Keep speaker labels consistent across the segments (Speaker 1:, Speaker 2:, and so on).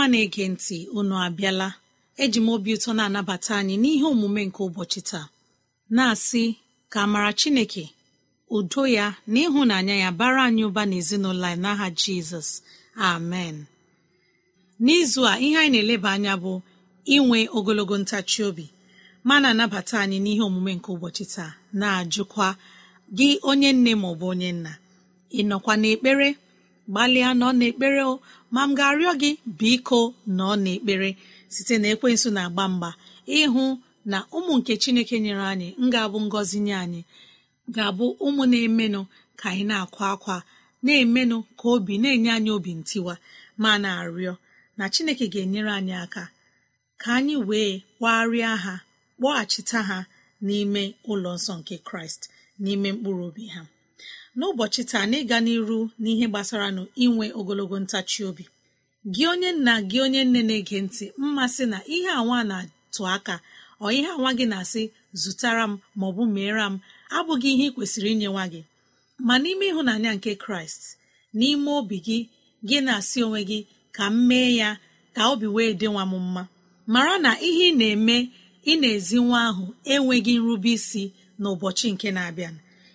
Speaker 1: ọma na-ege ntị unu abịala eji m obi ụtọ na-anabata anyị n'ihe omume nke ụbọchị taa na-asị ka amara Chineke udo ya na ịhụnanya ya bara anyị ụba n'ezinụlọ anyị n'aha Jizọs amen n'izu a ihe anyị na-eleba anya bụ inwe ogologo ntachi obi ma na-anabata anyị n'ihe omume nke ụbọchị taa na-ajụkwa gị onye nne ma onye nna ị nọkwa n'ekpere gbalịa nọ n'ekpere o ma m ga-arịọ gị biko nọ n'ekpere site na ekwensụ na-agba mgba ịhụ na ụmụ nke chineke nyere anyị ga-abụ ngọzi nye anyị ga-abụ ụmụ na-emenụ ka anyị na-akwa akwa na-emenụ ka obi na-enye anyị obi ntiwa ma na-arịọ na chineke ga-enyere anyị aka ka anyị wee kwagharịa ha kpọghachita ha n'ime ụlọ nsọ nke kraịst n'ime mkpụrụ obi ha n'ụbọchị taa na ịga n'iru n'ihe gbasara nụ inwe ogologo ntachi obi gị onye nna gị onye nne na-ege ntị mmasị na ihe anwa na-atụ aka ọ ihe anwa gị na-asị zụtara m bụ meere m abụghị ihe ị kwesịrị inye nwa gị ma n'ime ịhụnanya nke kraịst n'ime obi gị gị na-asị onwe gị ka m mee ya ka obi wee dị nwa m mma mara na ihe ị na-eme ị na-ezi nwa ahụ enweghị nrube isi n'ụbọchị nke na-abịa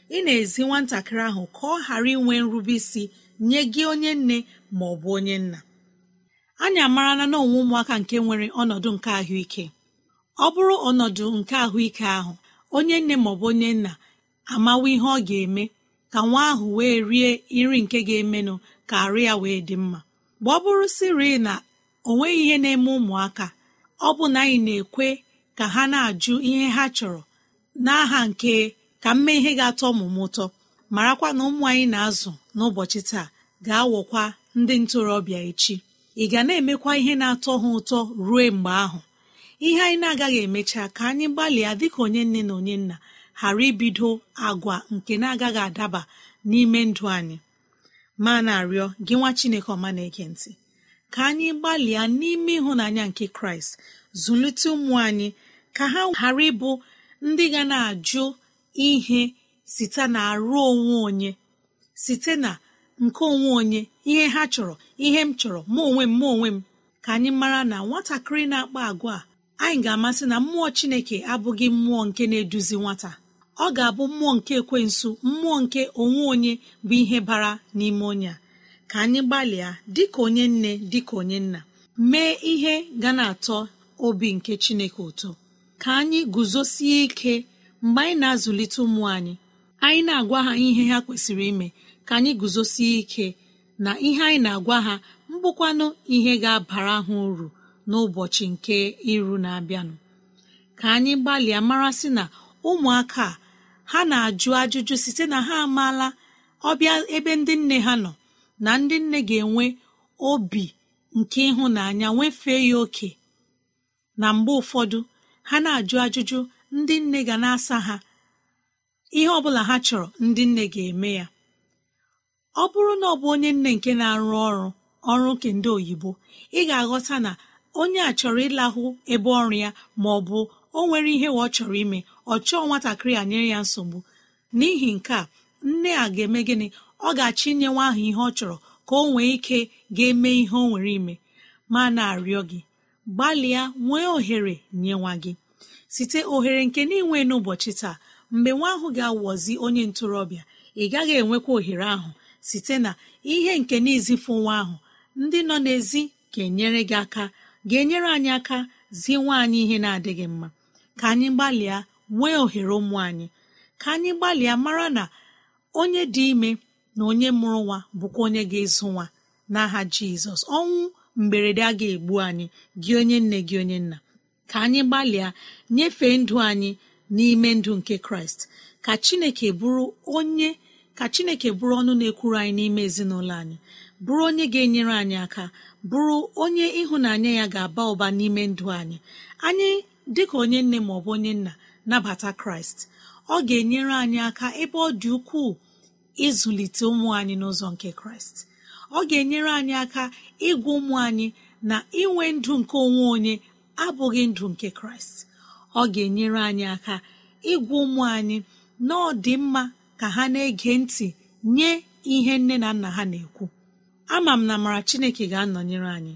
Speaker 1: ị na-ezi nwatakịrị ahụ ka ọ ghara inwe nrube isi nye gị onye nne ma ọ bụ onye nna anyị amarana na onwe ụmụaka nke nwere ọnọdụ nke ahụike ọ bụrụ ọnọdụ nke ahụike ahụ onye nne ma ọ bụ onye nna amawa ihe ọ ga-eme ka nwa ahụ wee rie nri nke ga-emenụ ka arụ ya wee dị mma mgbe ọ bụrụ siri na o nweghị ihe na-eme ụmụaka ọ bụ na anyị na-ekwe ka ha na-ajụ ihe ha chọrọ n'aha nke ka m mee ihe ga-atọ ọmụmụ ụtọ marakwa na ụmụ anyị na-azụ n'ụbọchị taa ga-awọkwa ndị ntorobịa echi ị ga na-emekwa ihe na-atọ ha ụtọ ruo mgbe ahụ ihe anyị na-agaghị emecha ka anyị gbalịa dịka onye nne na onye nna ghara ibido agwa nke na-agaghị adaba n'ime ndụ anyị ma na-arịọ gị nwa Chineke ọma na-ege ntị ka anyị gbalịa n'ime ịhụnanya nke Kraịst zụlite ụmụ anyị ka ha ghara ịbụ ndị ga na-ajụ ihe site na arụ onwe onye site na nke onwe onye ihe ha chọrọ ihe m chọrọ ma onwe m mụ onwe m ka anyị mara na nwatakịrị na-akpa agwa a anyị ga-amasị na mmụọ chineke abụghị mmụọ nke na-eduzi nwata ọ ga-abụ mmụọ nke ekwensu mmụọ nke onwe onye bụ ihe bara n'ime onye a ka anyị gbalịa dịka onye nne dịka onye nna mee ihe ga na-atọ obi nke chineke ụtọ ka anyị guzosie ike mgbe anyị na-azụlite ụmụ anyị anyị na-agwa ha ihe ha kwesịrị ime ka anyị guzosie ike na ihe anyị na-agwa ha mbụkwanụ ihe ga-abara ha uru n'ụbọchị nke iru na-abịanụ ka anyị gbalịa mara sị na ụmụaka ha na-ajụ ajụjụ site na ha amaala ọbịa ebe ndị nne ha nọ na ndị nne ga-enwe obi nke ịhụnanya nwefee ya oke na mgbe ụfọdụ ha na-ajụ ajụjụ ndị nne ga na-asa ha ihe ọbụla ha chọrọ ndị nne ga-eme ya ọ bụrụ na ọ bụ onye nne nke na-arụ ọrụ ọrụ nke ndị oyibo ị ga-aghọta na onye a chọrọ ịlahụ ebe ọrụ ya ma ọ bụ o nwere ihe ọ chọrọ ime ọ chọọ nwatakịrị a nyere ya nsogbu n'ihi nke a nne a ga-eme gịnị ọ ga-achọ inye nwa ahụ ihe ọ chọrọ ka o nwee ike ga-eme ihe o nwere ime ma na-arịọ gị gbalịa nwee ohere nye nwa gị site ohere nke na inwe n'ụbọchị taa mgbe nwa ahụ ga-awọzi onye ntorobịa ị gaghị enwekwa ohere ahụ site na ihe nke n'izifu nwa ahụ ndị nọ n'ezi ga-enyere gị aka ga-enyere anyị aka zie nwa anyị ihe na-adịghị mma ka anyị gbalịa nwee ohere ụmụ anyị ka anyị gbalịa mara na onye dị ime na onye mụrụ nwa bụkwa onye ga-ezu nwa n'aha Jizọs ọnwụ mberede a ga-egbu anyị gị onye nne gị onye nna ka anyị gbalịa nyefee ndụ anyị n'ime ndụ nke kraịst ka chineke bụrụ onye ka chineke bụrụ ọnụ na-ekwuru anyị n'ime ezinụlọ anyị bụrụ onye ga-enyere anyị aka bụrụ onye ịhụnanya ya ga-aba ụba n'ime ndụ anyị anyị dịka onye nne ma ọ bụ onye nna nabata kraịst ọ ga-enyere anyị aka ebe ọ dị ukwuu ịzụlite ụmụ anyị n'ụzọ nke kraịst ọ ga-enyere anyị aka ịgwa ụmụ anyị na inwe ndụ nke onwe onye abụghị ndụ nke kraịst ọ ga-enyere anyị aka ịgwa ụmụ anyị na ọ dị mma ka ha na-ege ntị nye ihe nne na nna ha na-ekwu ama m na amara chineke ga-anọnyere anyị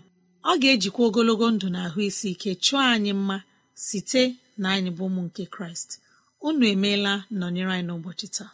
Speaker 1: ọ ga-ejikwa ogologo ndụ na ahụ isi ike chụọ anyị mma site na anyị bụ ụmụ nke kraịst unu emeela nọnyere anyị n'ụbọchị taa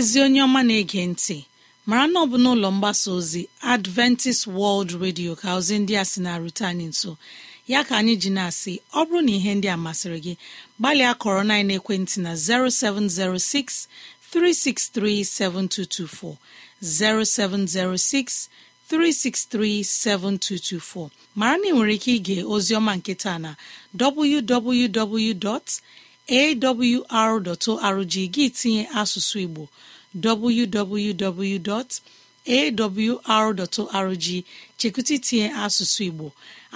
Speaker 1: ezi onye ọma na-ege ntị mara na ọ bụ n'ụlọ mgbasa ozi adventist world radio ka ozi ndị a si na-arute anyị nso ya ka anyị ji na-asị ọ bụrụ na ihe ndị a masịrị gị gbalịa kọrọ na ekwentị na 0706 363 0706 363 7224 mara na ị nwere ike ige ozi ọma nketa na www. awr.org gị tinye asụsụ igbo www.awr.org chekwụta itinye asụsụ igbo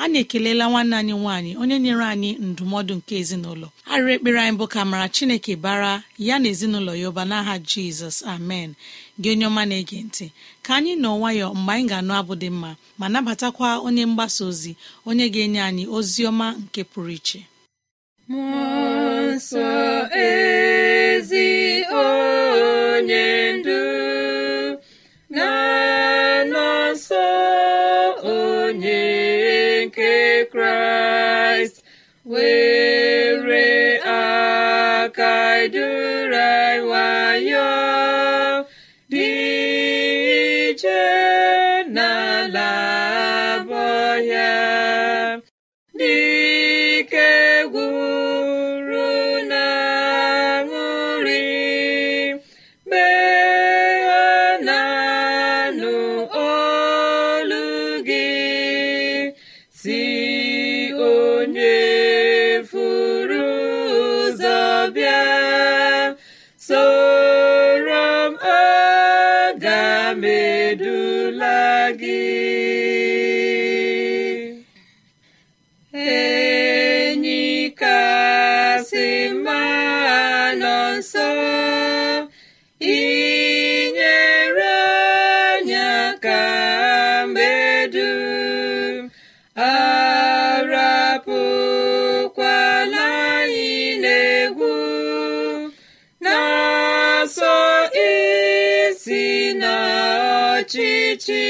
Speaker 1: anyị ekelela nwanne anyị nwanyị onye nyere anyị ndụmọdụ nke ezinụlọ arịrị ekpere anyị bụ ka mara chineke bara ya na ezinụlọ ya ụba n'aha jizọs amen gị onye ọma na-ege ntị ka anyị nọ nwayọ mgbe anyị ga-anụ abụ dị mma ma nabatakwa onye mgbasa ozi onye ga-enye anyị ozi ọma nke pụrụ iche
Speaker 2: mmụọ ezi onye ndu na onye nke kraịst were aka duru nwayọ dị n'ala abụọ ya si n'ọchịchị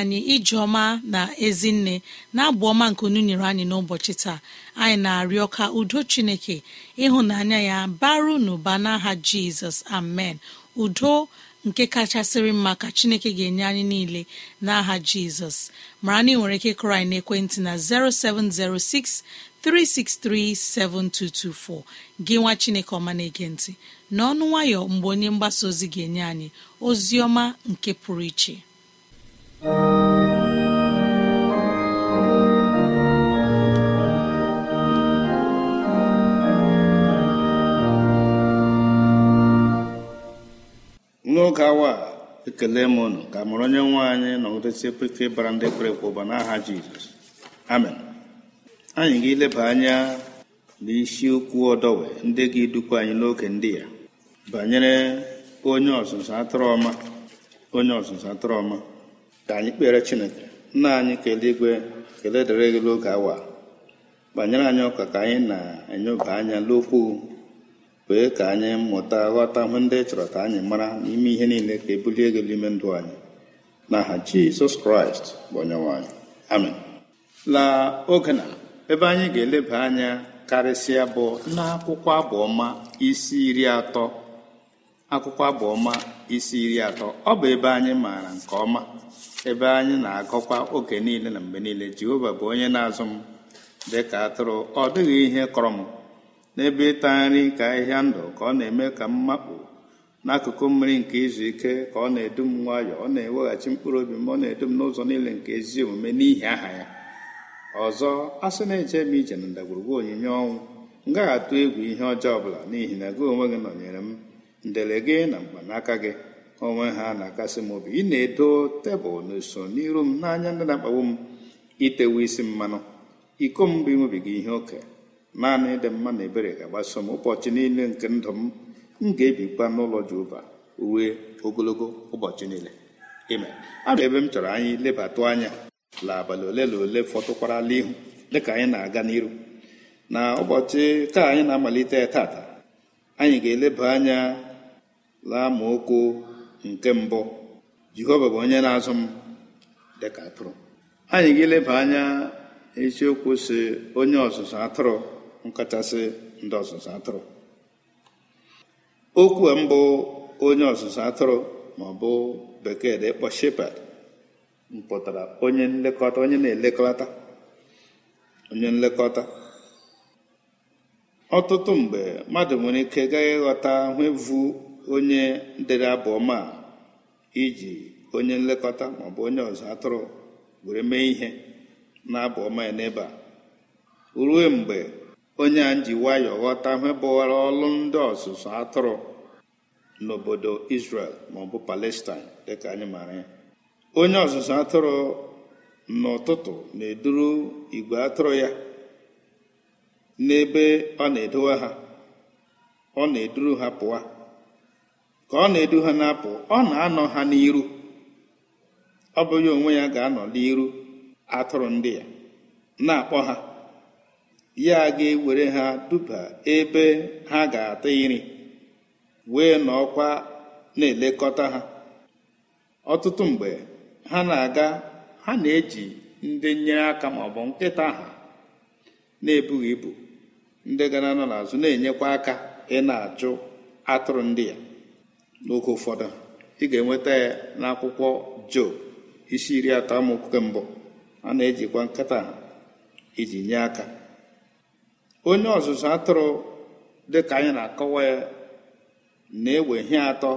Speaker 1: anyị ijeọma na ezinne na-abụ ọma nke unu nyere anyị n'ụbọchị taa anyị na-arịọ ka udo chineke ịhụnanya ya baru n'ụba n'aha jizọs amen udo nke kachasịrị mma ka chineke ga-enye anyị niile n'aha jizọs mara na ị nwere ike kụrụ anyị na 0706 363 7224 gị nwa chineke ọma na-ege ntị n'ọnụ nwayọ mgbe onye mgbasa ozi ga-enye anyị ozi nke pụrụ iche n'oge
Speaker 3: awa a ekele m unu ka mụrụ onye nwe anyị nọgidesi peke bara ndị kwere ekwe ụba n'aha jizọs amen anyị ga-eleba anya n'isiokwu ọdọwe ndị ga-edukwa anyị n'oge ndị ya banyere onye ọzụzụ atụrụ onye ọzụzụ atụrụ ọma ka anyị kpere chineke nna anyị kelee igwe kele dịrị gị n'oge awa banyere anyị ọka ka anyị na-enyoba anya n'okwu wee ka anyị mụta ghọta hụ ndị chọrọ ka anyị mara n'ime ihe niile ka ebulie ego n'ime ndụ anyị n'aha jizọs kraịst bụ onyenwe anyị amen la oge na ebe anyị ga-eleba anya karịsịa bụ n'akwụkwọ abụ ọma isi iri atọ akwụkwọ abụ ọma isi iri atọ ọ bụ ebe anyị maara nke ọma ebe anyị na-agọkwa oge niile na mgbe niile jehova bụ onye na-azụ m dị ka atụrụ ọ dịghị ihe kọrọ m n'ebe ịta nri ka ahịhịa ndụ ka ọ na-eme ka m makpu n'akụkụ mmiri nke izu ike ka ọ na-edu m nwayọọ ọ na-eweghachi mkpụrụ obi m ọ na-edu m n'ụzọ niile nke ezi omume n'ihi aha ya ọzọ a sị na-eje m ije na ndagwurugwu onyinye ọnwụ m atụ egwu ihe ọjọọ ọbụla n'ihi na gị onwe gị nọnyere m ndele gị na mkpanaka gị onwe ha na-akasị m obi ị na-edo tebụl n'uso n'iru m n'anya ndị na-akpagbu m itewe isi mmanụ iko m bụ ịṅụbiga ihe oke naanị ịdị mma na ebere ga-agbaso m ụbọchị niile nke ndụ m m ga-ebikwa n'ụlọ Jehova uwe ogologo ụbọchị niile ime abịa ebe m chọrọ anyị lebatụ anya la abalị ole na ole fọtụkwarala ihu dịka anyị na-aga n'iru na ụbọchị taa anyị na-amalite tata anyị ga-eleba anya la ma okwu nke mbụ jehova bụ onye na-azụ m dịka atụrụ anyị ga-eleba anya isiokwu si onye ọzụzụ atụrụ nkachasị ndị ọzụzụ atụrụ okwu a mbụ onye ọzụzụ atụrụ ma ọ bụ bekee dị ịkpọ shepherd mpụtara onye nlekọta onye na-elekọta onye nlekọta ọtụtụ mgbe mmadụ nwere ike gaghị ịghọta hụ onye dere abụọma ọma iji onye nlekọta maọbụ onye ọzọ atụrụ were mee ihe na abụ ọma ya n'ebe a ruo mgbe onye a ji nwayọ ghọta bụwara ọlụ ndị ọzụzụ atụrụ n'obodo Israel maọbụ Palestine dịka anyị maara ya onye ọzụzụ atụrụ n'ụtụtụ na-eduru igwe atụrụ ya n'ebe ọ na-edowe ha ọ na-eduru ha pụwa ka ọ na-edu ha na-apụ ọ na-anọ ha n'iru ọ bụ onwe ya ga-anọ n'iru atụrụ ndị ya na-akpọ ha ya ga-ewere ha duba ebe ha ga-ata iri wee n'ọkwa na-elekọta ha ọtụtụ mgbe ha na-aga ha na-eji ndị nyere aka ma ọ bụ nkịta ha na-ebughị ibu ndị gara nọ n'azụ na-enyekwa aka ị na-achụ atụrụ ndị ya n'oge ụfọdụ ị ga-enweta ya n'akwụkwọ job isi iri atọ amaokwu nke mbụ a na-ejikwa nkịta iji nye aka onye ọzụzụ atụrụ dịka anyị na-akọwa ya na-ewe ihe atọ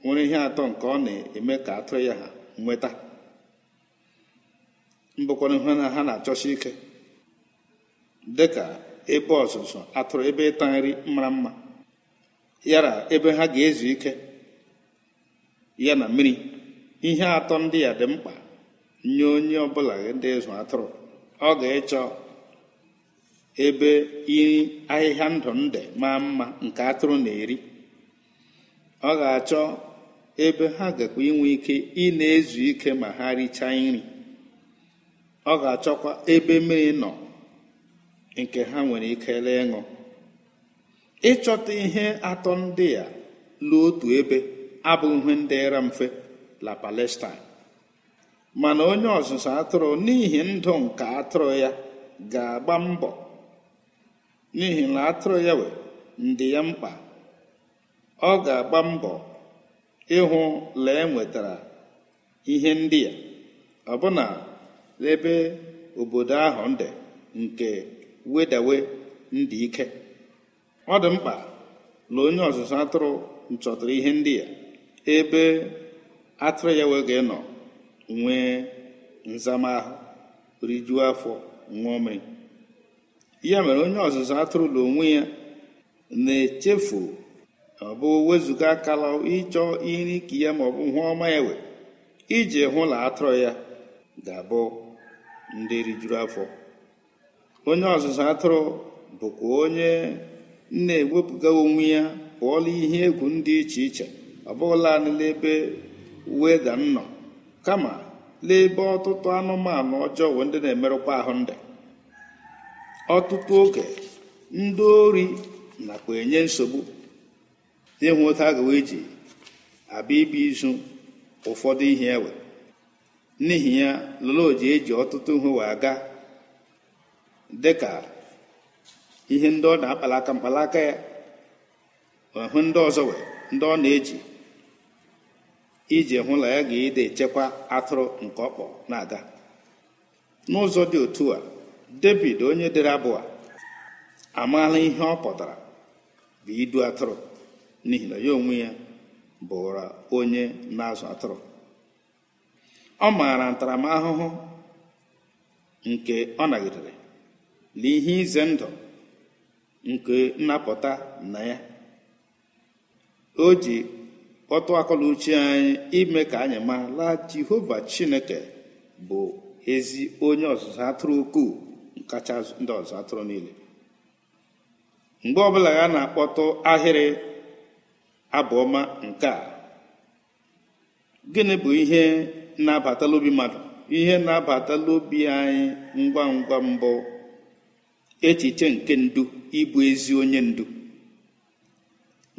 Speaker 3: nwere ihe atọ nke ọ na-eme ka atụrụ ya nweta mbụkwana ihe na ha na-achọsi ike dịka ebe ọzụzụ atụrụ ebe ịta nri mara mma yara ebe ha ga-ezu ike ya na mmiri ihe atọ ndị ya dị mkpa nye onye ọbụla ndị ịzụ atụrụ ọ ga-ịchọ ebe iri ahịhịa ndụ nde maa mma nke atụrụ na-eri ọ ga-achọ ebe ha gakwa inwe ike ị na-ezu ike ma ha richaa nri ọ ga-achọkwa ebe mmiri nọ nke ha nwere ike lee ịṅụ ịchọta ihe atọ ndị a lụọ otu ebe abụ ihe ịra mfe la Palestine mana onye ọzụzụ atụrụ n'ihi ndụ nke atụrụ ya ga-agba mbọ n'ihi na atụrụ ya wee ndị ya mkpa ọ ga-agba mbọ ịhụ lee enwetara ihe ndị ya ọbụna ebe obodo ahụ ndị nke wedawe ndị ike ọ dị mkpa na onye ọzụzụ atụrụ nchọtara ihe ndị ya ebe atụrụ ya wee ga-enọ nwee nzamahụ rijuo afọ nwa ome ya mere onye ọzụzụ atụrụ na onwe ya na-echefu ọ bụ wezụga akala ịchọ iri ka ya ma ọ bụ hụ ọma ewe iji hụ na atụrụ ya ga-abụ ndị rijuru afọ onye ọzụzụ atụrụ bụkwa onye na-ewepụga onwe ya pụọla ihe egwu ndị iche iche ọ bụghịla n'ebe weda ga nọ kama n'ebe ọtụtụ anụmanụ ọjọọ ndị na-emerụkwa ahụ ndị ọtụtụ oge ndị ori nakwa enye nsogbu ịhụ otu agawa eji abịa ibi izu ụfọdụ ihe ewe n'ihi ya loloji eji ọtụtụ ihe wee aga dịka ihe ndị ọ na akpalaka mkpalaka ya hụ ndị ọzọ wee ndị ọ na-eji iji hụ na ya ga ede echekwa atụrụ nke ọkpọ na-aga n'ụzọ dị otu a david onye dere abụọ a amaala ihe ọ pụtara bụ idu atụrụ n'ihi na ya onwe ya bụra onye na-azụ atụrụ ọ maara ntaramahụhụ nke ọ nagidere na ihe ize ndụ nke nnapụta na ya o ji kpọtụ akọla anyị ime ka anyị la jehova chineke bụ ezi onye ọzụzụ atụrụ ukwuu kacha ndị ọzụzụ atụrụ niile mgbe ọbụla ya na-akpọtụ ahịrị abụọma nke a gịnị bụ ihe na-abatala obi mmadụ ihe na-abatala obi anyị ngwa ngwa mbụ echiche nke ndu ịbụ ezi onye ndu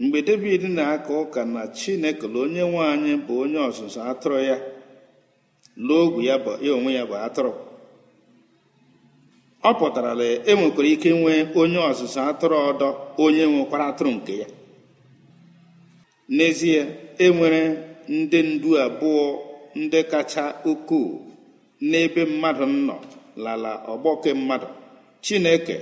Speaker 3: mgbe david na-aka ụka na chineke onye nwanyị bụ onye ọzụzụ atụrụ ya n'ogwu ya bụ onwe ya bụ atụrụ ọ pụtara na e nwekwara ike nwee onye ọzụzụ atụrụ ọdọ onye nwekwara atụrụ nke ya n'ezie enwere ndị ndu abụọ ndị kacha ukwuu n'ebe mmadụ nọ lala ọgbọke mmadụ chineke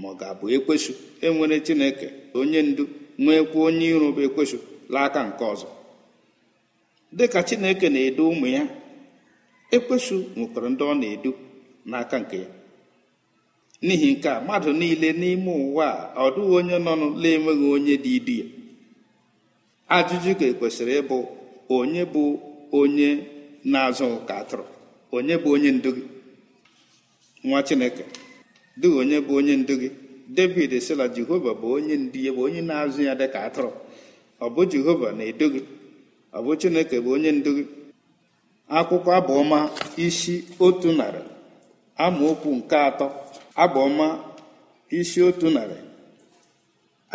Speaker 3: ma ọ ga-abụ ekwesụ enwere chineke onye ndu nwekwa onye ịrụba ekwesụ n'aka nke ọzọ dịka chineke na-edu ụmụ ya ekwesụ nwekwara ndị ọ na-edu n'aka nke ya n'ihi nke a mmadụ niile n'ime ụwa a ọ dịghị onye nọ na-enweghị onye dị idu ya ajụjụ ka e kwesịrị ịbụ onye bụ onye na-azụ ka atụrụ onye bụ onye ndu gị nwa chineke dị onye bụ onye ndu gị david sila jehova bụ onye ndu ya bụ onye na-azụ ya dịka atụrụ ọ bụ jehova na-edu gị ọ bụ chineke bụ onye ndu gị akwụkwọ abụọma isi otu narị amaokwu nke atọ abụọma isi otu narị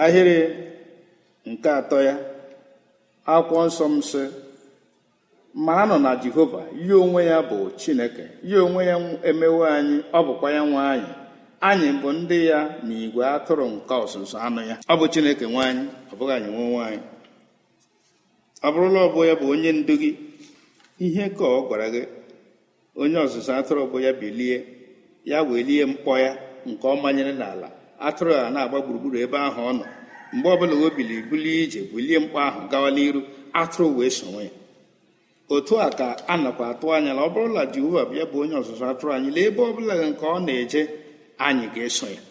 Speaker 3: ahịrị nke atọ ya akwụkwọ nsọ m sị ma nọ na jehova ya onwe ya bụ chineke ya onwe ya emewe anyị ọ bụkwa ya nwe anyị anyị bụ ndị ya na igwe atụrụ nke ọsụsụ anụ ya ọ bụ chineke nwaanyị ọ bụghị anyị nwe nwaanyị ọ bụrụla ọbụ ya bụ onye ndu gị ihe ka ọ gwara gị onye ọzụzụ atụrụ bụ ya bilie ya lie mkpọ ya nke ọ manyere n'ala atụrụ a na-agba gburugburu ebe ahụ ọ nọ mgbe ọbụla o bili bulie ije bulie mkpọ ahụ gawa n'iru atụrụ wee sonwe ya otu a ka a nakwa atụ anya na ọ bụrụla jehova bịa bụ onye ọzụzụ atụrụ anyị lee ebe ọbụla nke ọ na-eje anyị ga-eso ya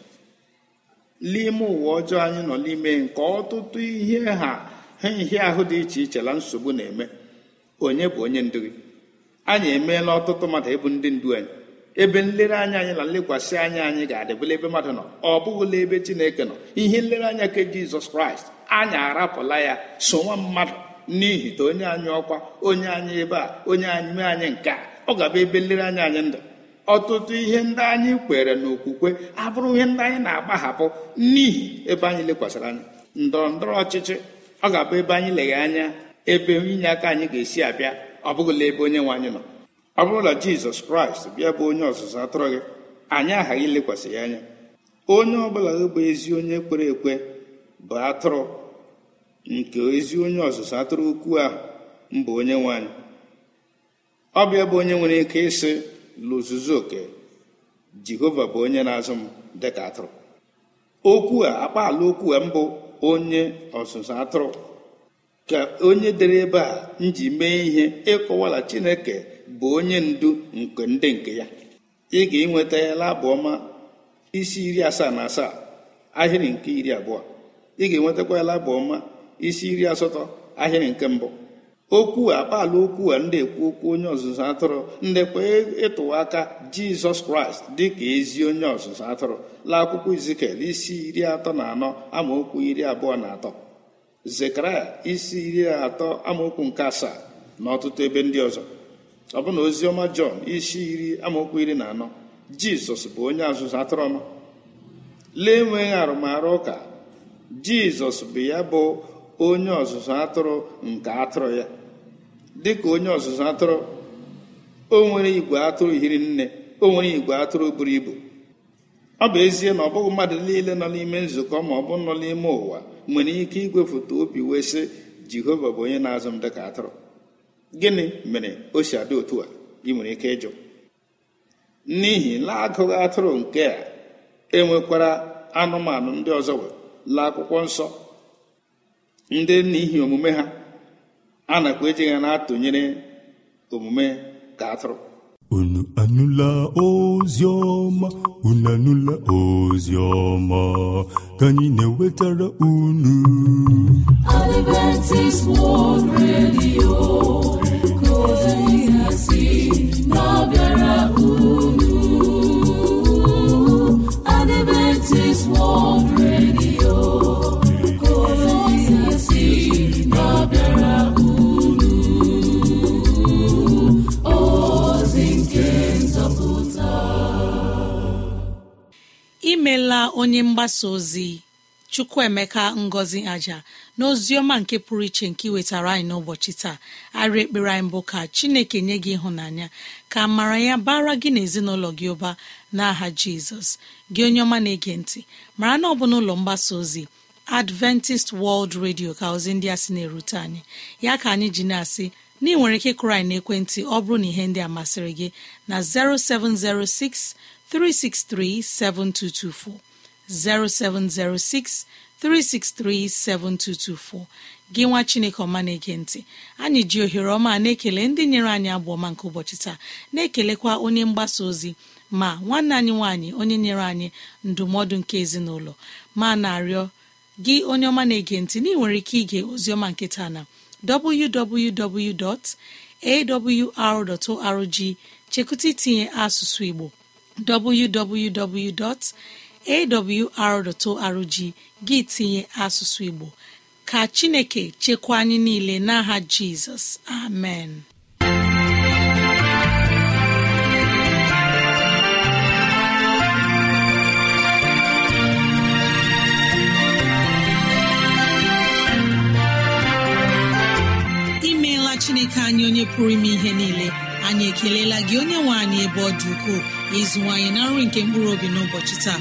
Speaker 3: n'ime ụwa ọjọọ anyị nọ n'ime nke ọtụtụ ihe ha ha ahụ dị iche iche na nsogbu na-eme onye bụ onye ndu gị anyị emeela ọtụtụ mmadụ ịbụ ndị ndu anyị ebe nlereanya anyị na nlekwasị anya anyị ga-adịbụla ebe mmadụ nọ ọ bụghịla ebe chineke nọ ihe nlereanya nke jizọs kraịst anyị arapụla ya sonwa nwa mmadụ n'ihi na onye anyị ọkwa onye anyị ebe a onye anyị mee anyị nke a ọ ga-abụ ebe nlereanya anyị ndụ ọtụtụ ihe ndị anyị kwere n'okwukwe abụrụ ihe ndị anyị na-agbahapụ n'ihi ebe anyị lekwasịrị anya ndọrọ ndọrọ ọchịchị ọ ga-abụ ebe anyị leghe anya ebe inye aka anyị ga-esi abịa ọ bụghịla ebe onye nwe anyị nọ ọ bụrụ na jizọs kraịst bịa bụ onye ọzụzụ atụrụ gị anyị aghaghị ilekwasị ya anya onye ọ gị bụ ezi onye kwere ekwe bụ atụrụ nke ezi onye ọzụzụ atụrụ ukwu ahụ mbụ onye nwe anyị ọ bụ ebe onye nwere ike ịsị lụzuzu oke jehova bụ onye na-azụ m dịka atụrụ okwu a akpaala okwu a mbụ onye ọzụzụ atụrụ ka onye dere ebe a nji mee ihe ịkọwala chineke bụ onye ndu nke ndị nke ya ị ga-enweta ya labụ isi iri asaa na asaa ahịrị nke iri abụọ ị ga-enwetakwa isi iri asatọ ahịrị nke mbụ okwu akpala okwu a ndị ekwu okwu onye ọzụzụ atụrụ ndekwa ịtụwa aka jizọs kraịst dịka ezi onye ọzụzụ atụrụ la akwụkwọ izikel isi iri atọ na anọ amaokwu iri abụọ na atọ zekaraya isi iri atọ amaokwu nke asaa na ọtụtụ ebe ndị ọzọ ọbụna oziọma jọn isi iri amaokwu iri na anọ jizọs bụ onye ọzụzụ atụrụ ọma lee enweghị arụmarụ ụka jizọs bụ ya bụ onye ọzụzụ atụrụ nke atụrụ ya dị ka onye ọzụzụ atụrụ o nwere igwe atụrụ hiri nne o nwere igwe atụrụ buru ibu ọ bụ ezie na ọ bụghị mmadụ niile nọ n'ime nzukọ ma ọ bụ nọ n'ime ụwa nwere ike igwefoto obi wee sị jehova bụ onye na-azụ m dịka atụrụ gịnị mere o si adị otu a ị nwere ike ịjụ n'ihi na atụrụ nke a enwekwara anụmanụ ndị ọzọ wee laa akwụkwọ nsọ ndị n'ihi omume ha a nakwa eji ha na-atụnyere omume ka atụrụ unu anụla ozi unu anụla ozi ka anyị na-ewetara unu unu Adventist
Speaker 2: World
Speaker 1: onye mgbasa ozi chukwuemeka ngozi aja ọma nke pụrụ iche nke iwetara anyị n'ụbọchị taa arị ekpere anyị mbụ ka chineke nye gị ịhụnanya ka mara ya bara gị n'ezinụlọ gị ụba n'aha jizọs gị onye ọma na-ege ntị mara na ọ bụ n'ụlọ mgbasa ozi adventist world radio ka ozi ndị a sị na-erute anyị ya ka anyị ji na-asị na ị nwere ike ịkụrụ anyị n'ekwentị ọ bụrụ na ihe ndị a masịrị gị na 0706 363 7224 0706 363 7224 gị nwa chineke ọma na-ege ntị anyị ji ohere ọma na-ekele ndị nyere anyị abụ ọma nke ụbọchị taa na-ekelekwa onye mgbasa ozi ma nwanne anyị nwanyị onye nyere anyị ndụmọdụ nke ezinụlọ ma na-arịọ gị onye ọma na-ege ntị ị nwere ike ige ozioma nke na www.awr.org chekụta itinye asụsụ igbo awr.org gị tinye asụsụ Igbo ka Chineke chekwa anyị niile n'aha Jizọs amen imeela Chineke anyị onye pụrụ ime ihe niile anyị ekelela gị onye nwe anyị ebe ọ dị ukwuu ịzụwanyị na nri nke mkpụrụ obi n'ụbọchị taa